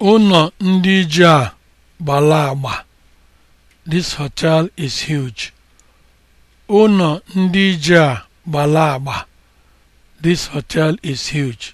ụnọ ndị ije a gbala agba. This hotel is huge. agba. This hotel is huge.